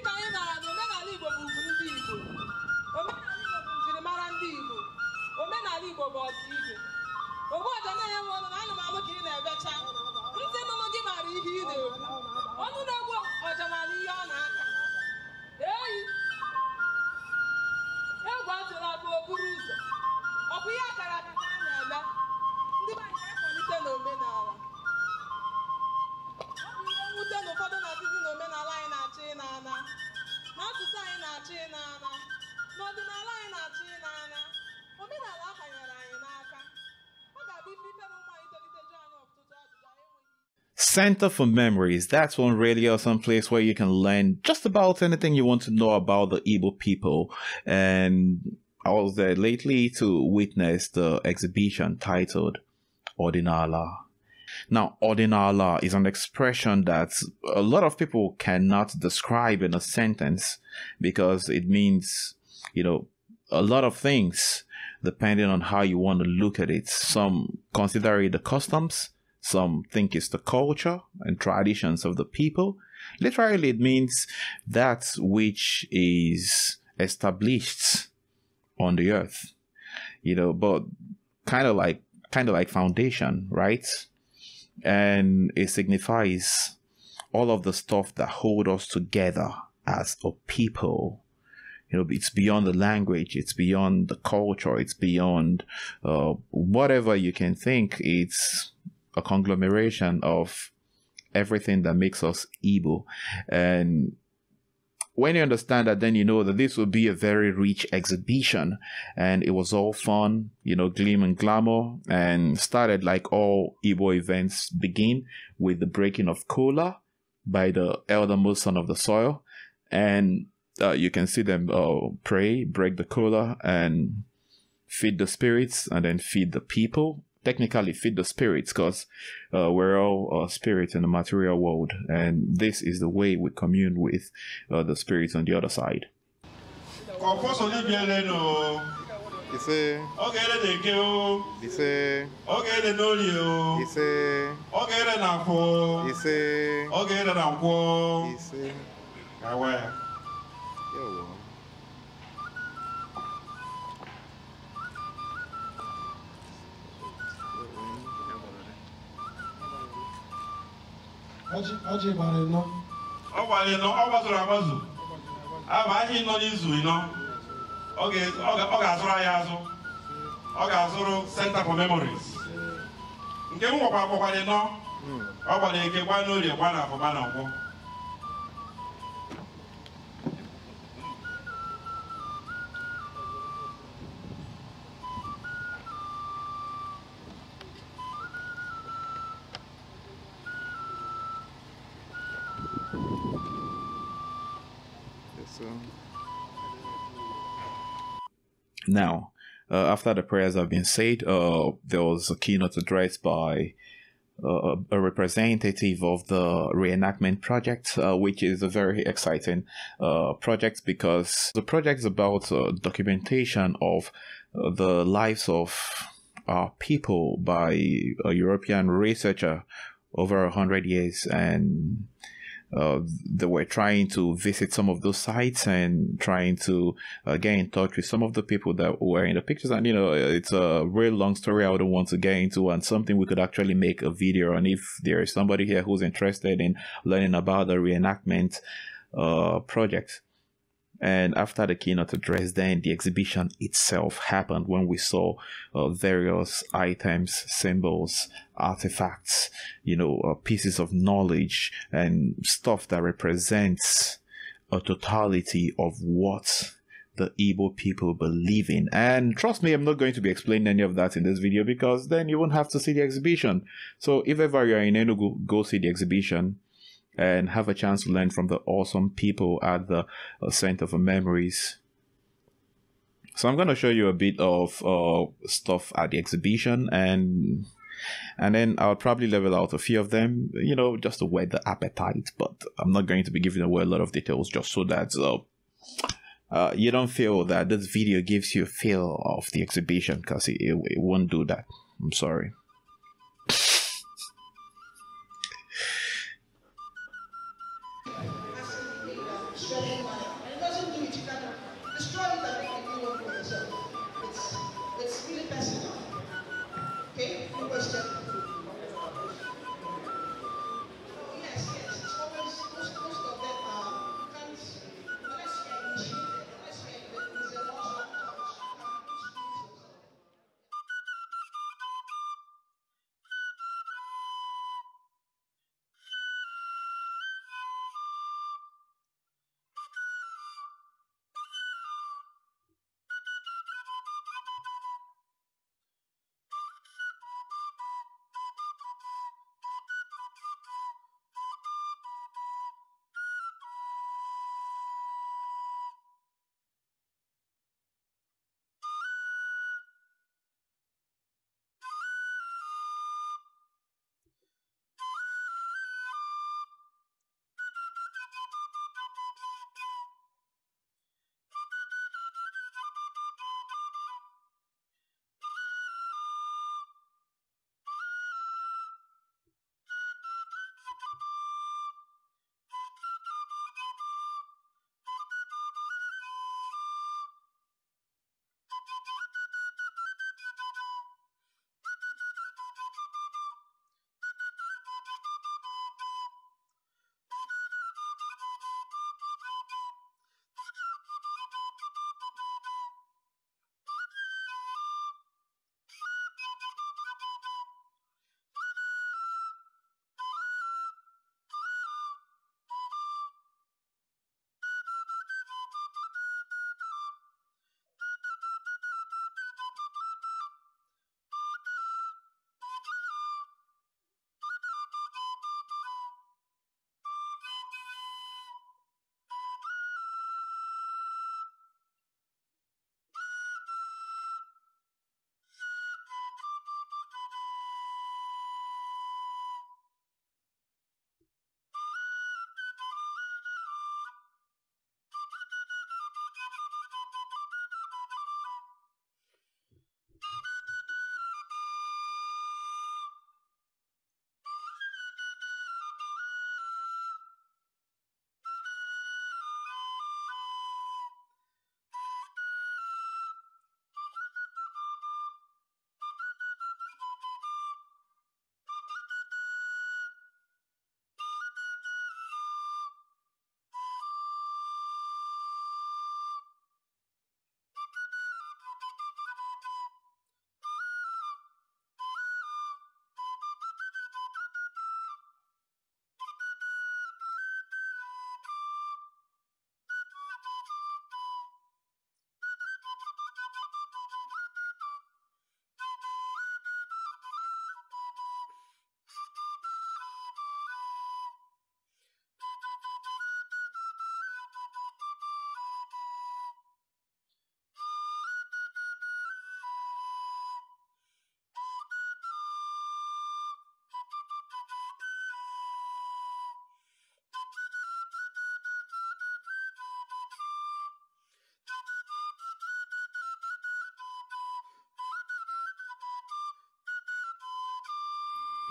dịka anyị mara na omenala Igbo bụ ugwu ndị Igbo omenala Igbo bụ njirimara ndị Igbo omenala Igbo bụ ọdịibe ogbuọja na-enyewe ọnụ na anụmanụ ka ị na-ebecha ndị nụnụ gị mara ihe ị na-ekwu ọnụ na-egbu ọja maara ihe ọ na-aka Center for Memories. That's one really awesome place where you can learn just about anything you want to know about the Igbo people. And I was there lately to witness the exhibition titled Ordinala. Now, ordinala is an expression that a lot of people cannot describe in a sentence because it means, you know, a lot of things depending on how you want to look at it. Some consider it the customs, some think it's the culture and traditions of the people. Literally, it means that which is established on the earth, you know, but kind of like kind of like foundation, right? And it signifies all of the stuff that hold us together as a people. You know, it's beyond the language, it's beyond the culture, it's beyond uh, whatever you can think. It's a conglomeration of everything that makes us Ebo, And when you understand that, then you know that this will be a very rich exhibition. And it was all fun, you know, gleam and glamour, and started like all Ebo events begin with the breaking of cola by the most son of the soil. And uh, you can see them uh, pray, break the cola, and feed the spirits, and then feed the people technically feed the spirits because uh, we're all uh, spirits in the material world and this is the way we commune with uh, the spirits on the other side ọjị gbara ịnọ ọ gbara ịnọ ọ gbazuru agbazu aba ahịa ịnọ n'izu ịnọ ọ ga-azụrụ anyị azụ ọ ga-azụrụ Center for Memories nke m nwekwa gbakwara ịnọ ọ gbara eke gba n'orie gba na afọ gba na nkwọ Now, uh, after the prayers have been said, uh, there was a keynote address by uh, a representative of the reenactment project, uh, which is a very exciting uh, project because the project is about uh, documentation of the lives of our people by a European researcher over a hundred years and they were trying to visit some of those sites and trying to uh, get in touch with some of the people that were in the pictures. And you know, it's a real long story I don't want to get into, and something we could actually make a video on if there is somebody here who's interested in learning about the reenactment uh, project. And after the keynote address, then the exhibition itself happened when we saw uh, various items, symbols, artifacts, you know, uh, pieces of knowledge and stuff that represents a totality of what the Igbo people believe in. And trust me, I'm not going to be explaining any of that in this video because then you won't have to see the exhibition. So if ever you're in Enugu, go see the exhibition and have a chance to learn from the awesome people at the uh, Center for Memories. So I'm going to show you a bit of uh, stuff at the exhibition and and then I'll probably level out a few of them, you know, just to whet the appetite. But I'm not going to be giving away a lot of details just so that uh, uh, you don't feel that this video gives you a feel of the exhibition because it, it, it won't do that. I'm sorry. money. And it doesn't do it, you can't destroy it and you for yourself. It's, it's really personal. Okay? No question.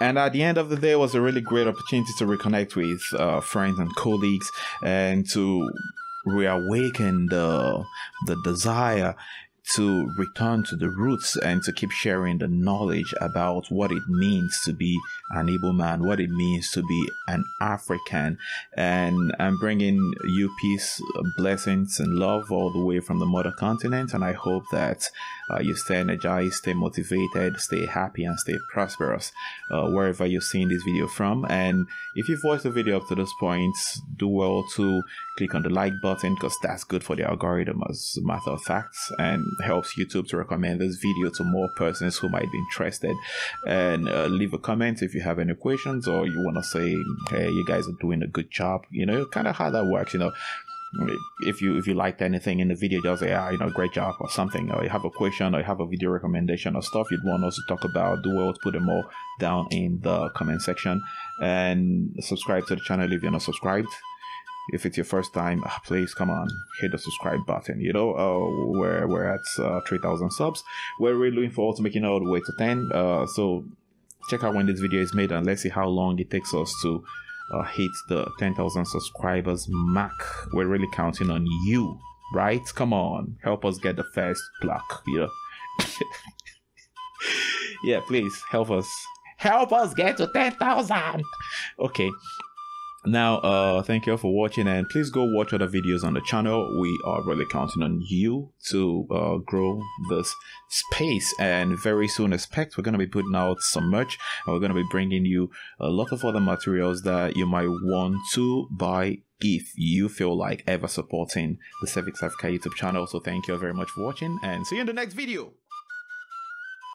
And at the end of the day, was a really great opportunity to reconnect with uh, friends and colleagues and to reawaken the the desire to return to the roots and to keep sharing the knowledge about what it means to be an able man, what it means to be an African. And I'm bringing you peace, blessings, and love all the way from the mother continent. And I hope that uh, you stay energized, stay motivated, stay happy, and stay prosperous uh, wherever you're seeing this video from. And if you've watched the video up to this point, do well to click on the like button because that's good for the algorithm as a matter of fact. And helps YouTube to recommend this video to more persons who might be interested. And uh, leave a comment if you have any questions or you want to say, hey, you guys are doing a good job. You know, kind of how that works. You know, if you if you liked anything in the video just say ah you know great job or something or you have a question or you have a video recommendation or stuff you'd want us to talk about do well to put them all down in the comment section and subscribe to the channel if you're not subscribed if it's your first time, ah, please come on, hit the subscribe button. You know, uh, we're, we're at uh, 3,000 subs. We're really looking forward to making our way to 10. Uh, so check out when this video is made and let's see how long it takes us to uh, hit the 10,000 subscribers mark. We're really counting on you, right? Come on, help us get the first block. Yeah. yeah, please help us. Help us get to 10,000. Okay. Now, uh, thank you all for watching and please go watch other videos on the channel. We are really counting on you to uh, grow this space and very soon expect we're going to be putting out some merch and we're going to be bringing you a lot of other materials that you might want to buy if you feel like ever supporting the Civic Africa YouTube channel. So thank you all very much for watching and see you in the next video.